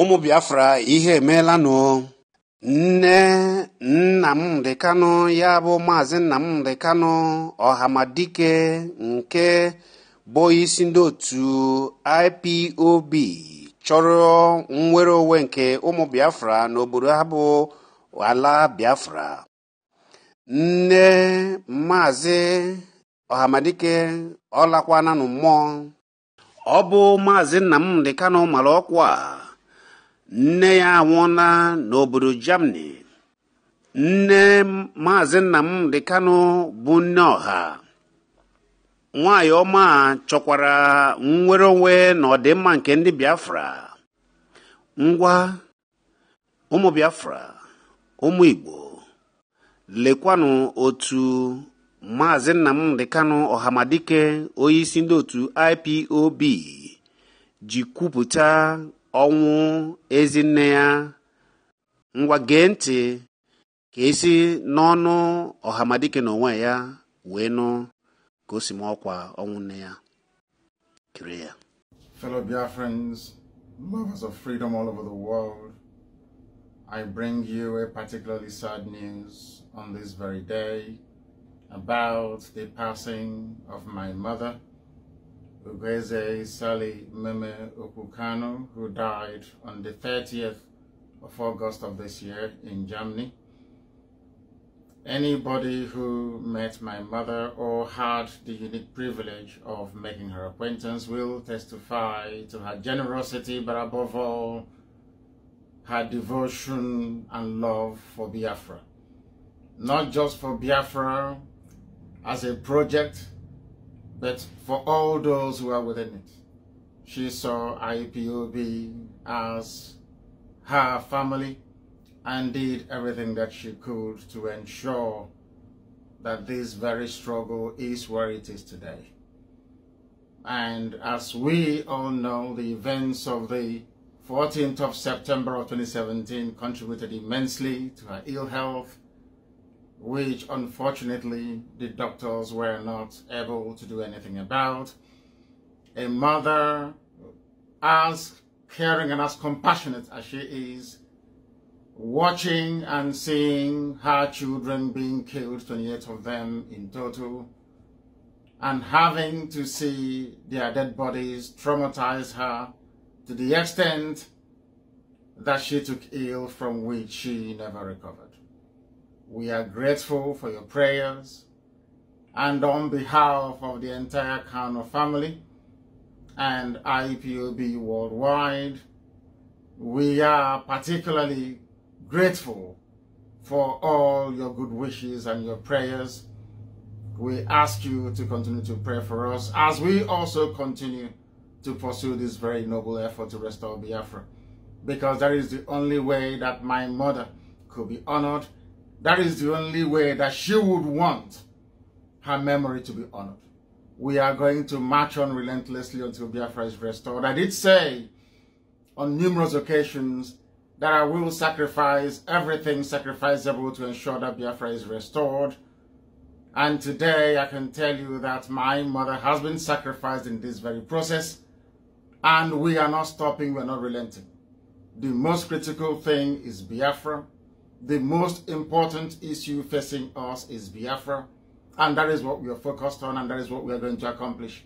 ụmụ biafra ihe emeelanụ nne nnamdị kanụ ya bụ maazị nna nnamdị kanụ ọhamadike nke bụ isi ndị otu ipob chọrọ nnwere onwe nke ụmụ biafra n'obodo ha bụ ala biafra nne maazị ọhamadike ọlakwananụ mmụọ ọ bụ maazị nna nnamdị kanụ mara ọkwa nne ya anwụọla n'obodo Germany nne maazị nna Nnamdị Kanụ bụ nne ọha nwaanyị ọma chọkwara nnwere onwe na ọdịmma nke ndị Biafra ngwa ụmụ Biafra ụmụ Igbo lekwanụ otu maazị Nnamdị Kanụ Ọhamadike onye isi ndị otu IPOB ji kwupụta ọnwụ ezinne ya ngwa gee ntị ka esi n'ọnụ ọhamadike na onwe ya wee nụ ka o si ma ọkwa ọnwụ nne ya kiri ya fellow biafrans lovers of freedom all over the world i bring you a particularly sad news on this very day about the passing of my mother Ugweze Sally Meme Okukano, who died on the 30th of August of this year in Germany. Anybody who met my mother or had the unique privilege of making her acquaintance will testify to her generosity, but above all, her devotion and love for Biafra. Not just for Biafra as a project, but for all those who are within it. She saw IPOB as her family and did everything that she could to ensure that this very struggle is where it is today. And as we all know, the events of the 14th of September of 2017 contributed immensely to her ill health, which unfortunately the doctors were not able to do anything about. A mother, as caring and as compassionate as she is, watching and seeing her children being killed, 28 of them in total, and having to see their dead bodies traumatize her to the extent that she took ill from which she never recovered. We are grateful for your prayers and on behalf of the entire Kano family and IPOB worldwide, we are particularly grateful for all your good wishes and your prayers. We ask you to continue to pray for us as we also continue to pursue this very noble effort to restore Biafra because that is the only way that my mother could be honored that is the only way that she would want her memory to be honored. We are going to march on relentlessly until Biafra is restored. I did say on numerous occasions that I will sacrifice everything sacrificable to ensure that Biafra is restored. And today I can tell you that my mother has been sacrificed in this very process. And we are not stopping, we are not relenting. The most critical thing is Biafra the most important issue facing us is Biafra, and that is what we are focused on, and that is what we are going to accomplish.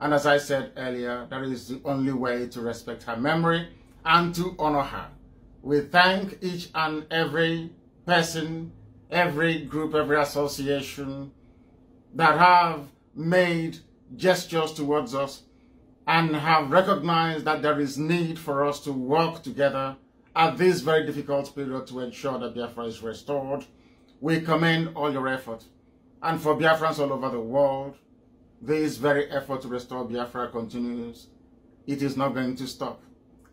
And as I said earlier, that is the only way to respect her memory and to honor her. We thank each and every person, every group, every association that have made gestures towards us and have recognized that there is need for us to work together at this very difficult period to ensure that Biafra is restored. We commend all your effort. And for Biafrans all over the world, this very effort to restore Biafra continues. It is not going to stop.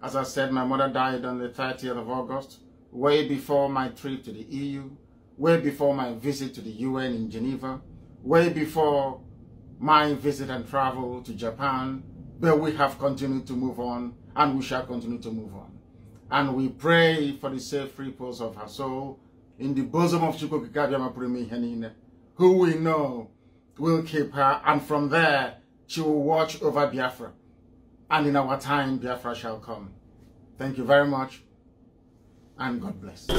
As I said, my mother died on the 30th of August, way before my trip to the EU, way before my visit to the UN in Geneva, way before my visit and travel to Japan, but we have continued to move on and we shall continue to move on and we pray for the safe repose of her soul in the bosom of Chukwukikadiamapurimi Henine, who we know will keep her, and from there she will watch over Biafra. And in our time, Biafra shall come. Thank you very much, and God bless.